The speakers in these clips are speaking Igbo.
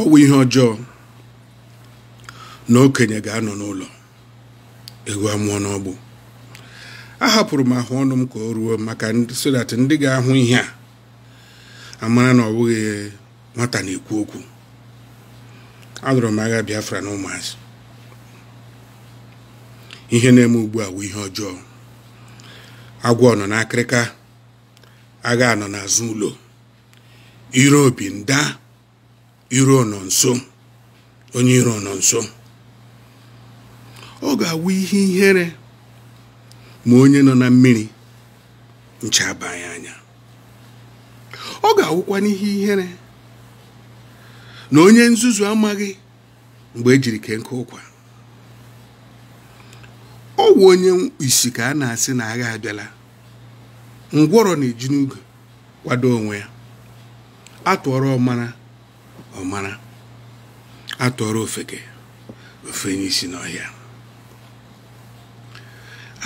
ọwụ ihe ọjọọ na okenye ga-anọ n'ụlọ egwu amụọ n'ọgbụ ahapụrụ m ahụ ọnụ m ka o ruo maka sodat ndị ga-ahụ ihe a amara na ọ bụghị nwata na-ekwu okwu alụrụ m agha biafra na ụmụazị ihe na-eme ugbu a wụ ihe ọjọọ agwọ nọ n'akịrịka agha nọ n'azụ ụlọ obi nda iro nọ nso onye iro nọ nso ọ ga-awụ ihe ihere ma onye nọ na mmiri ncha abanye anya ọ ga-awụkwa n'ihe ihere na onye nzuzu amaghị mgbe ejiri ke nke ụkwa ọ wụ onye isi ka a na-asị na agha abịala ngwọrọ na-eji n'ugo kwado onwe ya atụọrọ ọmara ọmara atụọrọ ofeke ofe isi n'ọhịa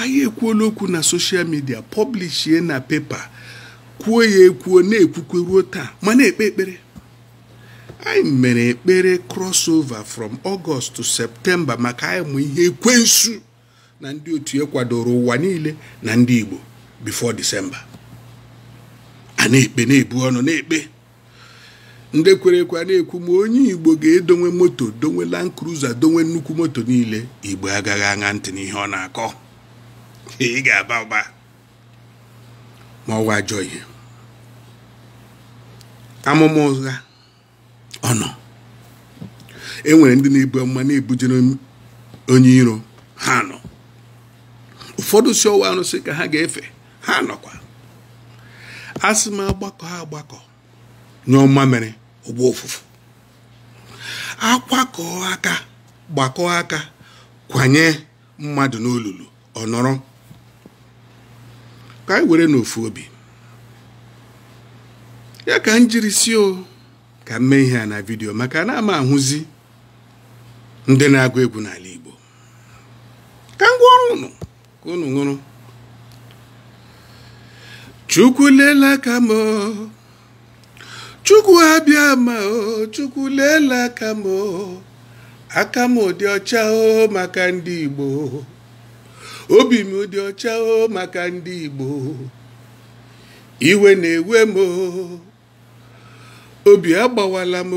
anyị ekwuola okwu na soshal midia pọblishie na pepa kwuo ya ekwuo na-ekwukwe ruo taa ma na-ekpe ekpere anyị mere ekpere crossover from August to septemba maka anyị mụ ihe ekwensu na ndị otu ya kwadoro ụwa niile na ndị Igbo bifo December a na-ekpe na-ebu ọnụ na-ekpe ndị kwere na-ekwu ma onye igbo ga-edonwe moto donwe land cruiser donwe nnukwu moto niile igbo agaghị aṅa ntị n'ihe ọ na-akọ ị ga-aba ụba ma ọwa ajọ ihe amụma ụgha ọ nọ enwere ndị na-ebu amụma na-ebujere onye iro ha nọ ụfọdụ si ọwa arụsị ka ha ga-efe ha nọkwa asị m agbakọ ha agbakọ nyụọ mmamịrị ụgbọ ofufu akwakọọ aka gbakọọ aka kwanye mmadụ n'olulu ọ nọrọ ka anyị were n'ofu obi ya ka m jiri si ka m mee ihe a na vidio maka na ama ahụzi ndị na-agụ egwu n'ala Igbo ka ngwa ọrụ unu ka ụnụ ṅụrụ chukwu lela ka chukwu abịa ma o chukwu leela aka m o aka m dị ọcha o maka ndị igbo obi m ụdị ọcha o maka ndị igbo iwe na-ewe m obi agbawala m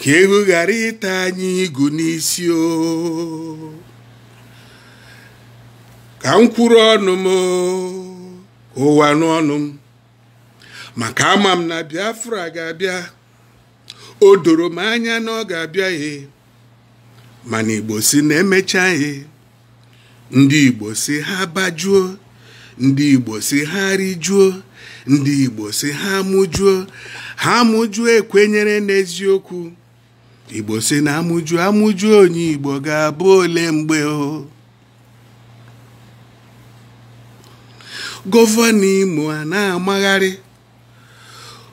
ka ehu ghara ịta anyị igu n'isi o ka m kwuru ọnụ m ụwa n'ọnụ m maka ama m na biafra ga-abịa o doro m anya na ọ ga-abịaghị abịa mana igbo si na-emechaghị ndị igbo si ha bajuo ndị igbo si ha rijuo ndị igbo si ha mụjuo ha mụjuo ekwenyere n'eziokwu igbo si na amụjuo amụjuo onye igbo ga-abụ ole mgbe o gọvanọ imo a na-amagharị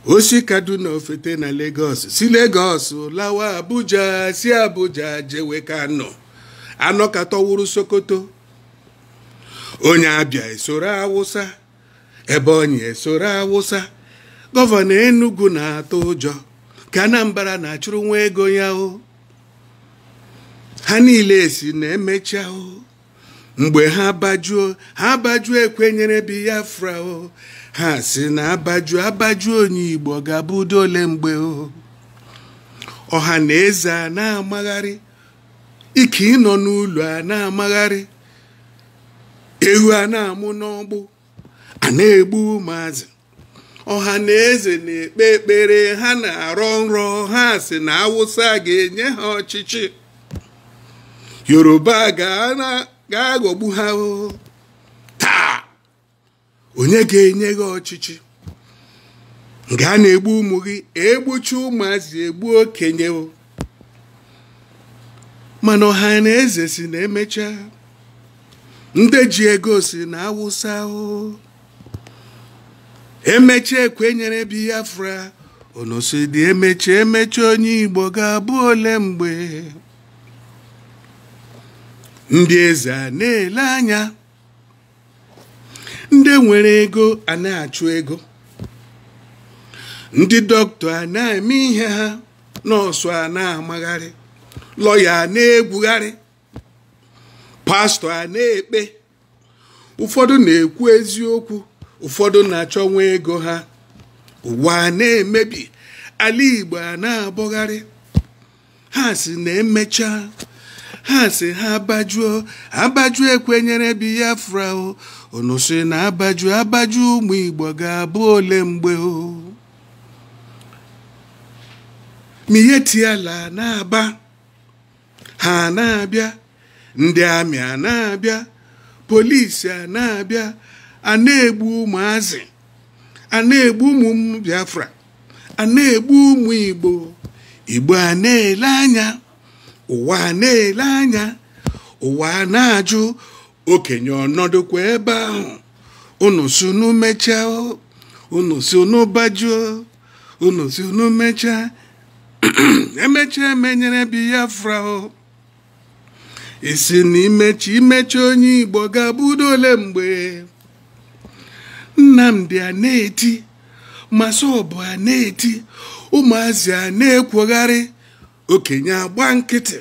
osi kaduna ofete na lagos si lagos lawa abuja si abuja jewe kano anọ sokoto onye abịa esoro awụsa ebe onye esoro awụsa gọvanọ enugu na-atụ ụjọ ka anambra na-achụrụ nwa ego ya ha niile esi na emechi ahụ. mgbe ha abajuo ha abajuo ekwenyere biafra o ha si na abajuo abajuo onye igbo ga-abụ ole mgbe o ọha na eze a na-amagharị ike ịnọ n'ụlọ a na-amagharị Ehu a na-amụ n'ọgbụ a na-egbu ụmụazị ọha na eze na-ekpe ekpere ha na-arọ nrọ ha si na awụsa ga-enye ha ọchịchị yoruba ga na gaa ghọgbu ha taa onye ga-enye gị ọchịchị nke a na-egbu ụmụ gị egbuchi ụmụazị egbu okenye mana ọha na eze si na emecha ndị ji ego si na awụsa emecha ekwenyere biafra onosi dị emecha emecha onye igbo ga-abụ ole mgbe ndị eze a na-ele anya ndị nwere ego a na-achụ ego ndị dọkịta a na-eme ihe ha nọọsụ a na-amagharị lọya a na-egwugharị pastọ a na-ekpe ụfọdụ na-ekwu eziokwu ụfọdụ na-achọnwa ego ha ụwa a na-emebi ala Igbo a na-abọgharị ha si na emecha. ha si ha abajuo abajuo ekwenyere biafra o unu si na abaju abaju ụmụ igbo ga-abụ ole mgbe o mihe tiala na-aba ha na-abịa ndị amị a na-abịa polisi a na-abịa a na-egbu ụmụazị a na-egbu ụmụ biafra a na-egbu ụmụ igbo igbo a na-ele anya ụwa na-ele anya ụwa na-ajụ okenye ọnọdụ kwa ebe ahụ unu sunu mechaa unu sunu bajuo unu sunu mechaa emechaa emenyere biafra isi na imechi imechi onye igbo ga-abụdo ole mgbe nnamdị a na-eti masọbụ a na-eti ụmụazị a na-ekwogharị okenye agba nkịtị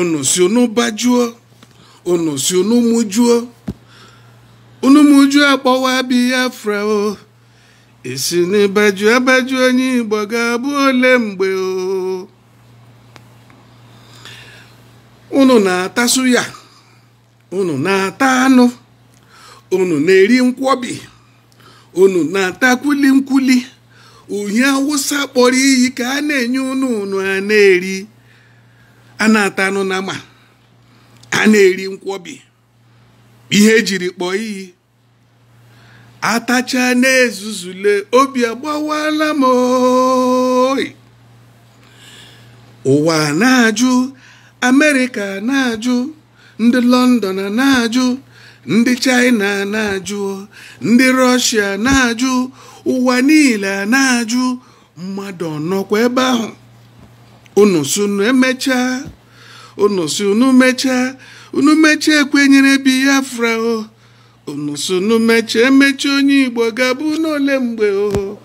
unu si unu bajuo unu si unu mụjuo unu mụjuo akpọwa biafra o isi n'ịbaju abaju onye igbo ga-abụ ole mgbe o unu na-atasu ya unu na-ata anụ unu na-eri nkwobi unu na-ata kwili nkwuli uhie awụsa kpọrọ iyi ka a na-enye unu a na-eri a na-ata anụ na ma a na-eri nkwọbi ihe ejiri kpọọ iyi atacha na-ezuzule obi agbawala m oi ụwa na-ajụ amerịka na-ajụ ndị lọndọn na-ajụ ndị China na-ajụ ndị rọshịa na-ajụ ụwa niile na-ajụ mmadụ nọkwa ebe ahụ unu sunu emecha unu sunu mecha unu mecha ekwenyere Biafra o unu onye Igbo gaba n'ole mgbe o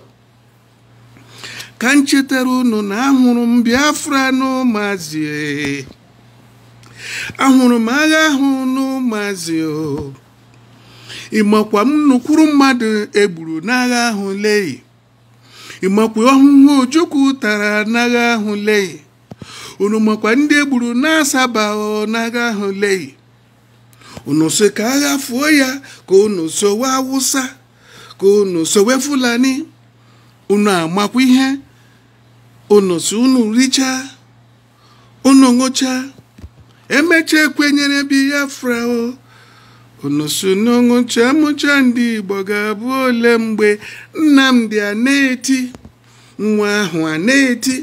ka m chetara unu na ahụrụ m Biafra n'ụmụazị ahụrụ m agha ahụ n'ụmụazị o ịmakwa m nnukwuru mmadụ egburu n'agha ahụ leyi ịmakwa ọhụhụ ojukwu tara n'agha ahụ leyi unu makwa ndị egburu na-asaba n'agha ahụ leyi unu so ka agha fụọ ya ka unu sowe awụsa ka unu sowe fulani unu amakwa ihe unu si unu richa unu ṅụchaa emecha ekwenyere biafra unu so n'ọṅụ nchemuche ndị igbo ga-abụ ole mgbe nnamdị a na-eti nwa ahụ a na-eti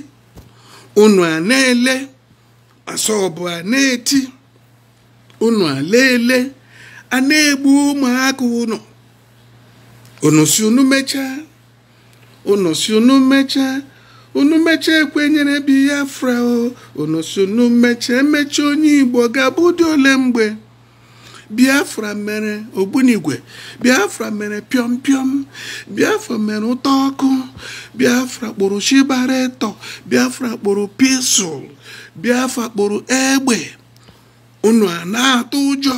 unu a na-ele asọbụ a na-eti unu a na-ele a na-egbu ụmụaka unu unu unu mechaa unu unu mechaa unu mechaa ekwenyere bi ya fra unu si unu onye igbo ga-abụ ụdị ole mgbe biafra mere ogbunigwe biafra mere pịọm biafra mere ụtọ ọkụ biafra kpụrụ shibaretọ biafra kpụrụ pisụl biafra kpụrụ egbe unu a na-atụ ụjọ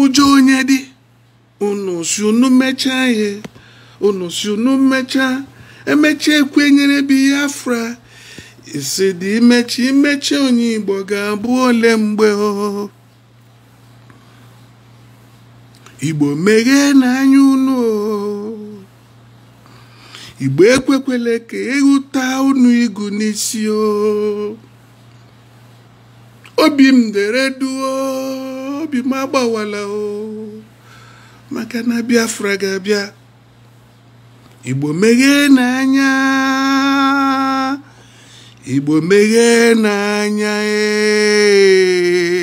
ụjọ onye dị unu si unu mechaa ihe unu si mechaa emechi ekwe nyere biafra isi dị imechi imechi onye igbo ga-abụ ole mgbe o igbo meghee n'anya unu igbo ekwekwele ka ịhụta unu igu n'isi o obi m dere duo obi m agbawala o maka na biafra ga-abịa igbo meghee n'anya igbo meghee n'anya ee